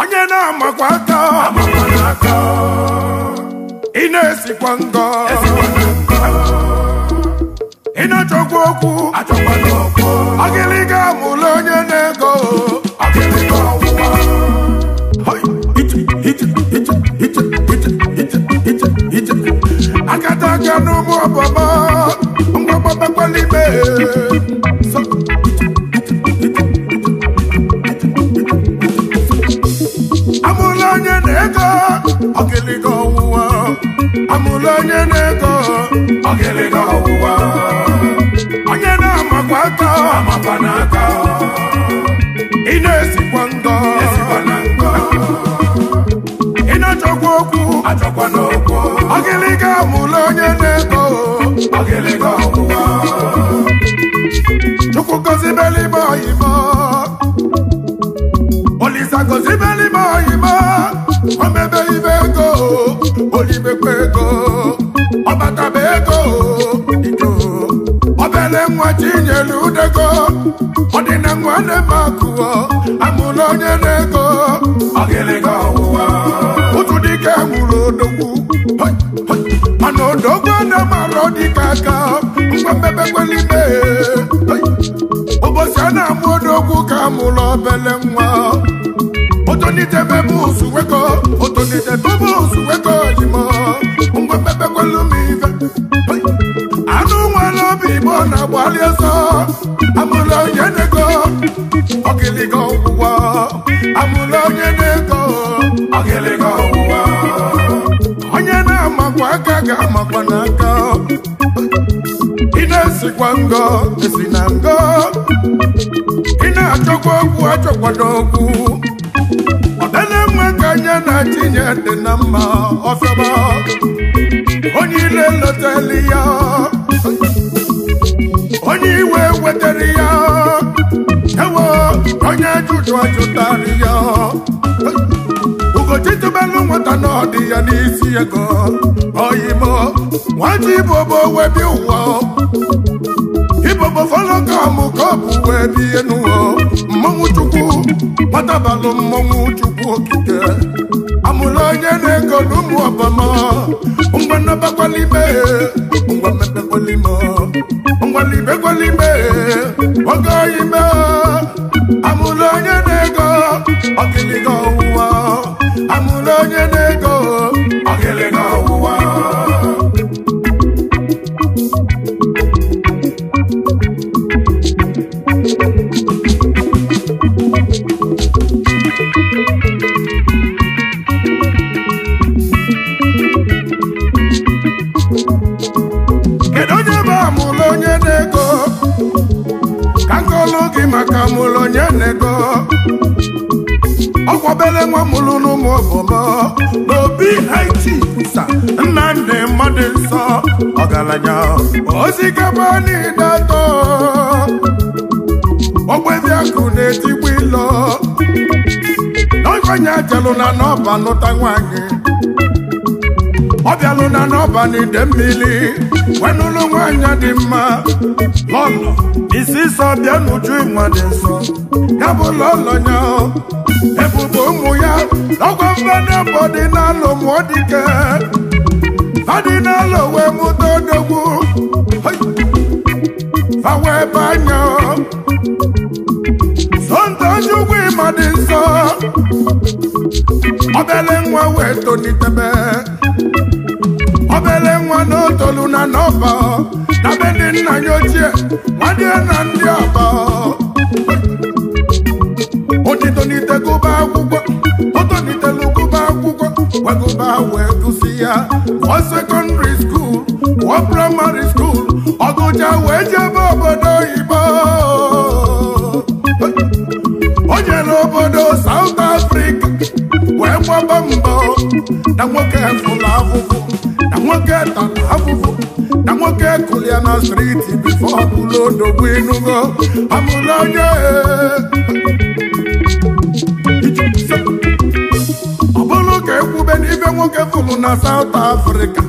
onye na-amakwa aka ị na-esikwa ngọ ị na-achọkwa okwu agịlịga amụla onye na-ego akata aka n'ụmụ ọbọbọ, ngwa gbapakwa n'ime ọgịlịga ọwụwa amụlụ onye na-ego ọgịlịga nwa Chinyere Udego ọdịna nwa na-eme akụọ amụla onye na-ego ọgịlịga ọwụwa otu dike nwụrụ odogwu mana odogwu na-amara dịka aka ngwa mmebekwelime ụbọchị a na-amụ odogwu ka amụla obele nwa gbalịa ọsọ amụla onye na-ego ọgịlịga ọgwụgwọ amụla onye na-ego ọgịlịga ọgwụgwọ onye na-amakwa aka ga-amakwa n'aka ị na-esikwa ngọ esi na ngọ ị na-achọkwa okwu achọkwado okwu ọdanenwe ka anya na-achịnye dị na mma ọfịaba onye ile lọtali ya onye iwe wetara ya ewo onye jụjụ ajụtara ya ugochitubelu nwata n'ọdị ya n'isi ego oyimo nwata ibobo webi ụwa ibobo folo ka ọ bụ wee bie n'ụwa mmọnwụ chukwu nwatabalụ mmọnwụ chukwu okike amụrụ onye na-ego n'ụmụ ọbama nnabakwalime mmepekwalime ngwalibe ngwalibe oge oyi mee amụla onye ọkwabere nwa mụrụ n'ụmụ obodo n'obi haiti sa nnamdị mmadụ nsọ ọgaranya osikapa niile atọ ogbebi akụ na-etigbu ilo n'ọkwanye ajelụ na n'ọba nụta nwanyị ọ bịalụ na n'ọba n'ide mmiri wenụlụ nwanyị dị mma lọlọ isi sọ bịa n'uju ịnwa dị nsọ ya bụ ụlọ ya ebube ụmụ ya ọgwọ mmanụ ọdịnala ụmụdike ọdịnala wee mụta odogwu awa ebe anya sonta onye ugwu ịma dị nsọ obele nwa wee tolitebe obele nwa na otolu na n'ọba na be ndị nna ya ochie nwadie na ndị ọba tonitegụba akwụkwọ ọ tolitela akwụkwọ gwagụba wee gụsị ya ọ sekọndịrị skuul ọ praịmarị skuul ọgụja wee jebe obodo oyibo o jere obodo South Africa wee gbaba mbọ na nwoke fụlụ afụfụ na nwoke tara afụfụ na nwoke kụrụ na striti bifo ọbụla odogwu ịnụgo amụla onye ọ bụrụ ka ekwube n'ibe nwoke fụrụ na saut afrịka.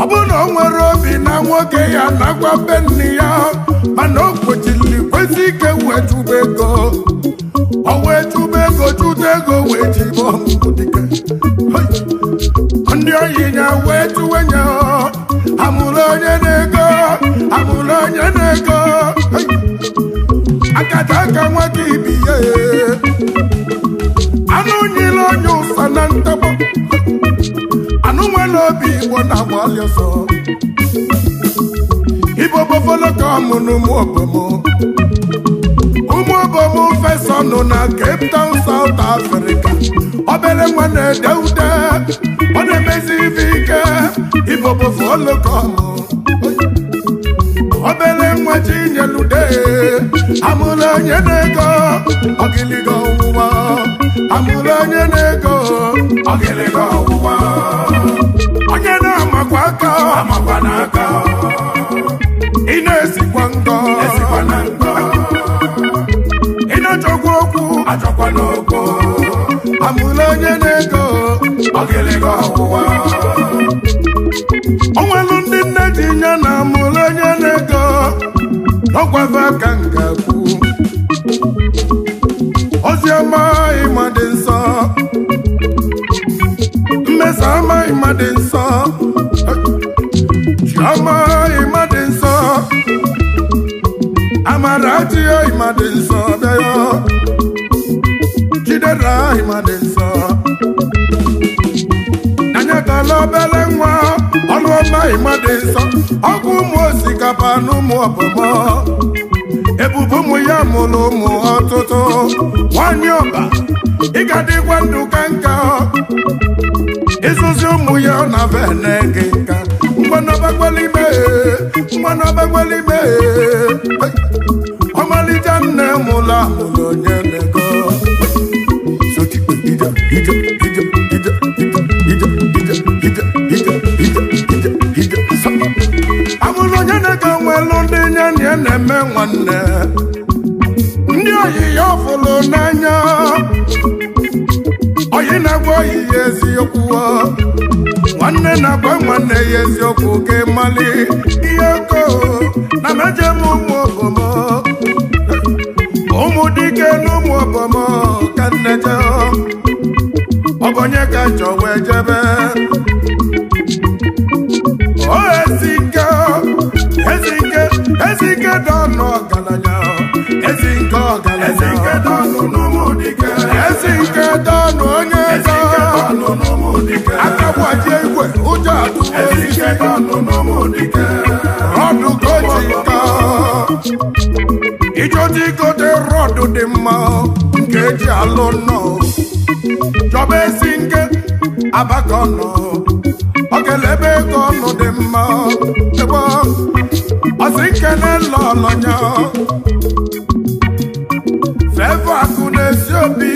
ọ bụrụ na o nwere obi na nwoke ya nakwa be ya mana o kwechiri kwesị ike wee ego o wee chụba ego ego wee ndị ọyị ya wee chụwe ya amụrụ onye na-ego amụrụ onye na-ego akata aka nwoke bi ya ngwo na agbalị ọsọ ibo bofolo na ụmụ obomo ụmụ obomo fesa na Cape Town South Africa obere nwa na-ede ude ọ na-emezi ike ibo bofolo obere nwa ji nyelude amụrụ onye na-ego amụrụ onye na-ego amakwa n'aka ị na-esikwa nkọ esikwa na nkọ ị na-achọkwa okwu achọkwa n'okwu amụla onye na-ego ọ ga ọgwụwa o nwelu ndị nne ji ya na amụla onye na-ego n'ọgwafe aka nke kwu ozi ọma ịma dị nsọ mmesa ọma ịma dị nsọ Amara ịma dị nsọ Amara adịghị ịma dị nsọ bịa ya Chidera ịma dị nsọ Anyatala obere nwa ọlụọma ịma dị nsọ ọkụ ụmụ osikapa na ụmụ ọbọmọ ebube ụmụ ya mụrụ ụmụ ọtụtụ nwanyị ọba ị ga-adịkwa ndụ ka ụmụ ya na vene gị ọgbagbelime mmanụ ọgbagbelime ọmalite nne mụlụ amụlụ onye nego amụlụ onye nego ndị nye ya na-eme nwanne ndị oyi ya ọfụlụ n'anya oyi na-agwa oyi ya eziokwu nwanne na-agba nwanne ya eziokwu ka ịmali ihe ko na meje m ụmụ obomo ụmụ dike na ụmụ obomo ka nne je ọbọnye ka njọ wee jebe o ezike ezike ezike dị ọnụ ọgaranya ezike ọgaranya ezike dị ọnụ te rọdụ dị mma nke eji alụ nọ chọba ezi nke abaka nọ ọ ga ego ọnụ dị mma ebe ọsị nkene lọlọnya fevọ akụ na-esi obi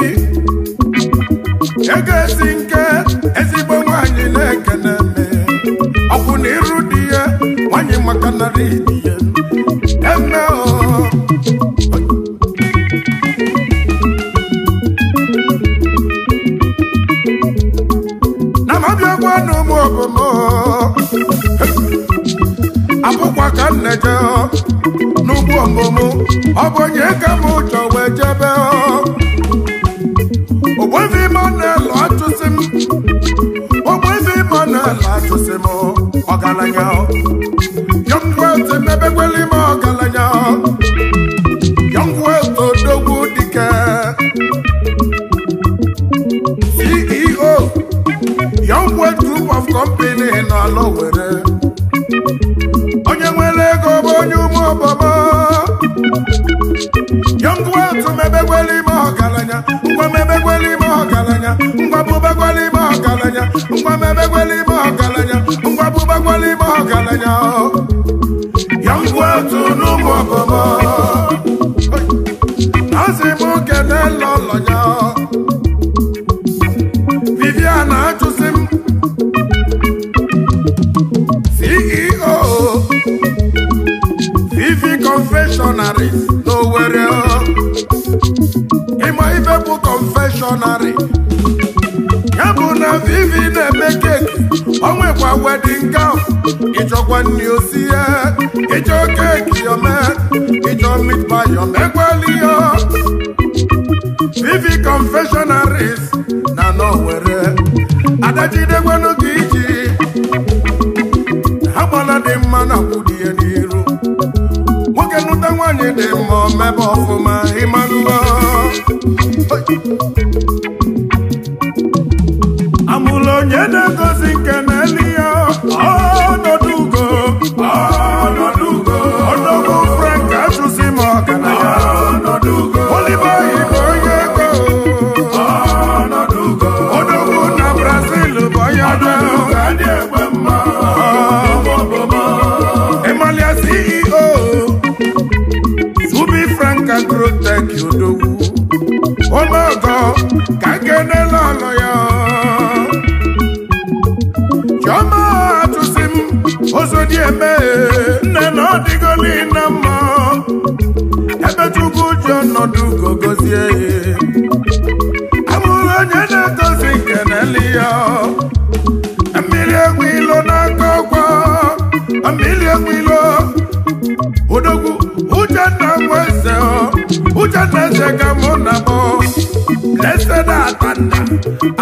ego ezi nke ezigbo nwanyị na-ekene eme ọkwụ na iru dị ya nwanyị maka narị dị ya eme abụkwa ka m na-eje n'ugwu ọmụmụ ọ bụ onye ka m ụjọ wee jebe ogbevi m na-elu atụsị m ogbevi ime na-elu atụsị m ọgaranya yọngwete mebekwele ime odogwu dike CEO Young Group of Company nọ ala mma yọngwatu mebegwele ime ọgaranya ngwa mebegwele ime ọgaranya ngwa bụbegwele ime ọgaranya ngwa mebegwele ime ọgaranya ngwa bụbegwele ime ọgaranya yọngwatu n'ụmụ ọbọmọ azị m kele lọlọnya culinary ya bụ na vivi na-eme keki o nwekwa wedin gaf ịchọkwa nri osi ya ịchọ keki yome ịchọ mitpa yome vivi confessionaries na n'owere adajidegwenu gị iji ha gbala dị mma na kwudie n'iru nwoke nụta nwaanyị dị mma omebe ọfụma ịmalụọ Hey. ji ọnọdụ ugo gozie onye na edozi nke na-eli ya mmiri egwu ilo n'aka ọgwọ mmiri egwu ilo odogwu uchenna nweze uchenna eze ka mụ na mụ na atanna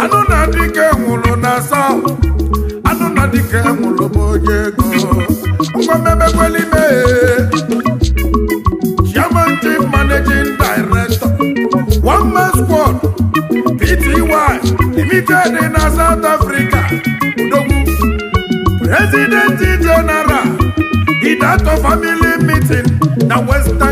anụ na dike nwụrụ na sọ anụ na dike nwụrụ onye ego Limited in uh, South Africa President General Idato family meeting The Western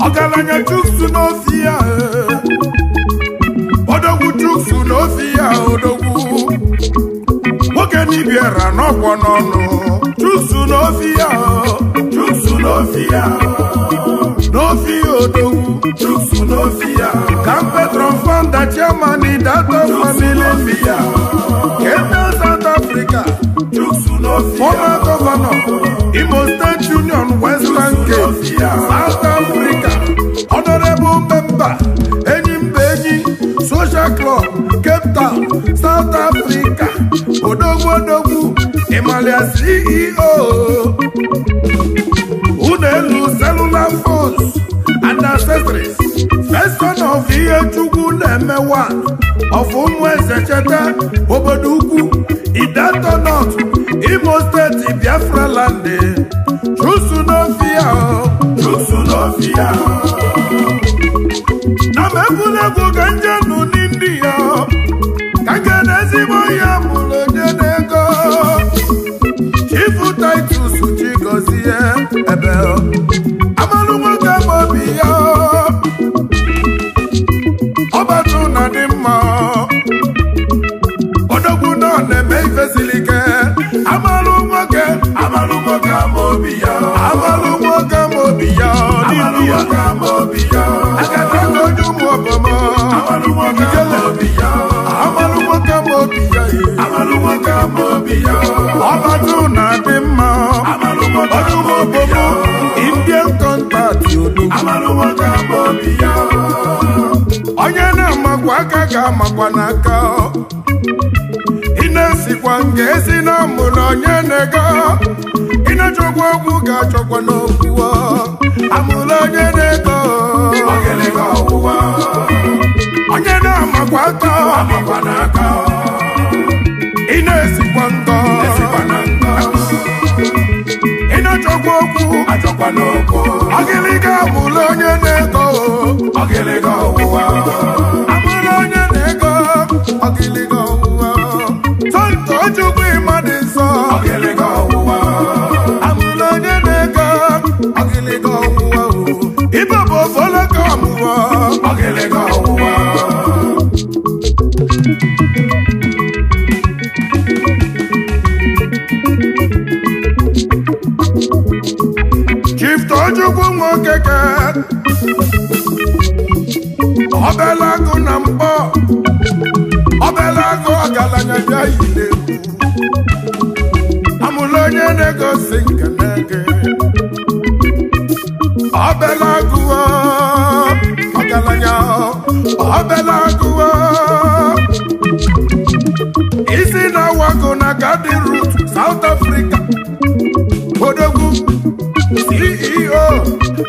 Ogalanya tuksu no fia Odogu tuksu no fia odogu Okeni biera no ponono Tuksu no fia Tuksu no fia No fia odogu Tuksu no fia Kampe tronfan da chamani da to famili fia Kenda South Africa Tuksu no fia Oma governor South Africa odogwu odogwu Emalia CEO unu elu cellular phones and accessories person of ihe chukwu na-emewa of ụmụ eze cheta obodo ukwu Idato North Imo State Biafra land chusu n'ofia na m egwuregwu ga njem ya mụrụ onye na-ego Chifu Titus ji gọzie eh, ebe onye na-amakwa aka ga-amakwa n'aka ị na-esikwa nke esi na mụrụ onye na-ego ị na-achọkwa okwu ga-achọkwa n'okwu amụrụ onye na-ego onye na-amakwa aka ị na-esikwa nkọ na a okwu agịlịga bụla onye na-eko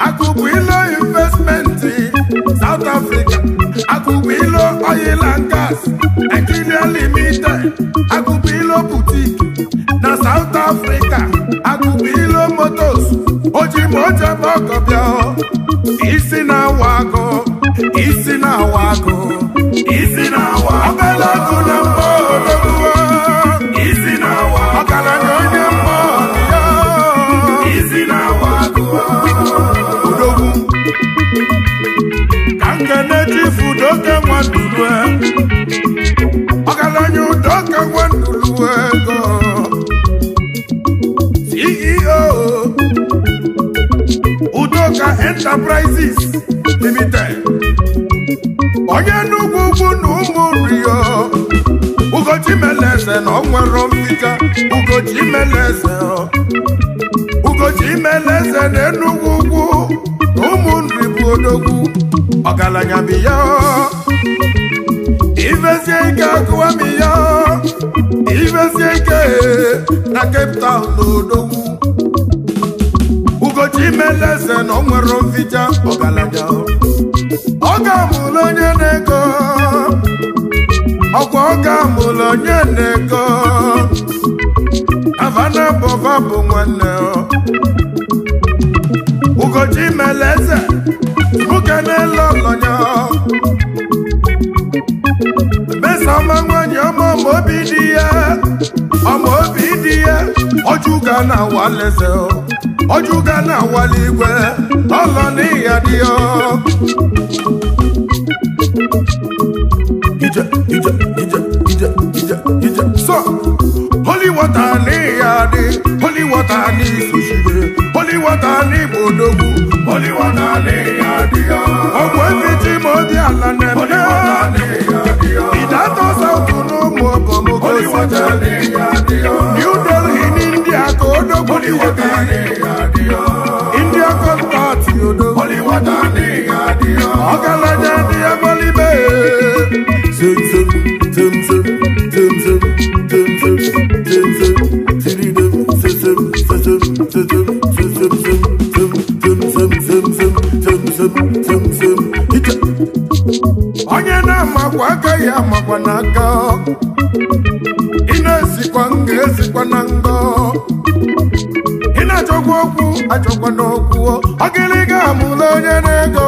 akụkụ ilo investmenti South Africa akụkụ ilo oil and gas Nigeria limited akụkụ ilo boutique na South Africa akụkụ ilo motos oji ma ọgọbịa isi na awa akụ isi na awa agụ udoka nwaduru ọgaranya udoka nwaduru ego CEO udoka enterprises limited onye n'ugwu ugwu na ụmụ rio ugochi meleze na ọnwere na enugwu ugwu na ụmụ ọgaranya bụ ya ike akụwa m ya ivezie ike na Cape Town na odogwu ugochi meleze na ọ nwere mficha ọgaranya ọ ga-amụlụ onye na-ego ọkwa ọ ga-amụlụ onye na-ego avana bova bụ nwanne ugochi meleze nwoke n'elu ọlọnya mesama nwanyị ọma obi dị ya ọma obi dị ya ọjụga na ọjụga na igwe ọlọ n'ịya dị ya so holy water n'ịya dị holy ogwuefichi ma ọ dị ala na-eme ịdata saụtụ na ụmụ okomoko New ndị n'India ka odogwu dị ezikwa n'aka ị na-ezikwa m ezikwa na ngọ ị na-achọkwa okwu achọkwa n'okwu ọgịlịga amụla onye na-ego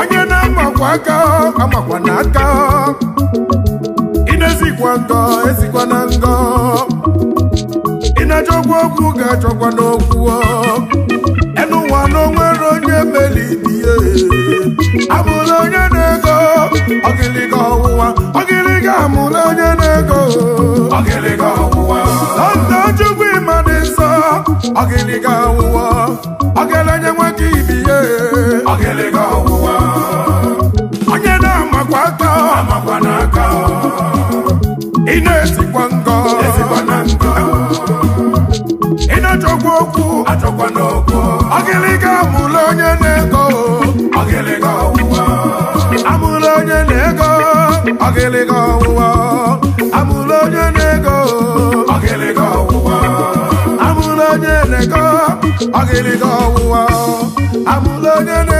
onye na-amakwa aka amakwa n'aka ị na-ezikwa ngọ ezikwa na ngọ ị na-achọkwa okwu ga-achọkwa n'okwu amụrụ onye na-ego Lọndọ Chukwu ịma dị nsọ ọgịlịga ọwụwa ọgịlị nwoke ibi onye na-amakwa aka ị na-esikwa ngọ ị na-achọkwa okwu ọgịlịga amụrụ onye na-ego ọgịlịga ọwụwa amụrụ onye na-ego ọgịlịga ọwụwa I'm ọwụwa amụla